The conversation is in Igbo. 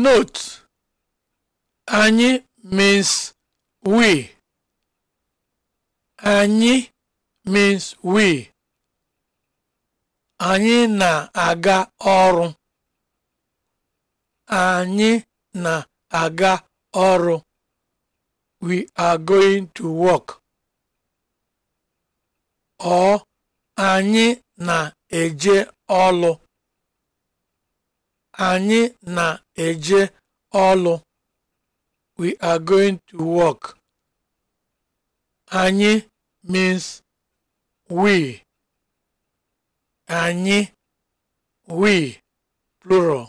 Note, anyị means we. Anyị means we. Anyị na-aga ọrụ. Anyị na-aga ọrụ. We are going to work. Ọ anyị na-eje ọlụ. Anyị na-eje ọlụ We are going to work. Anyị means we. Anyị, we, plural.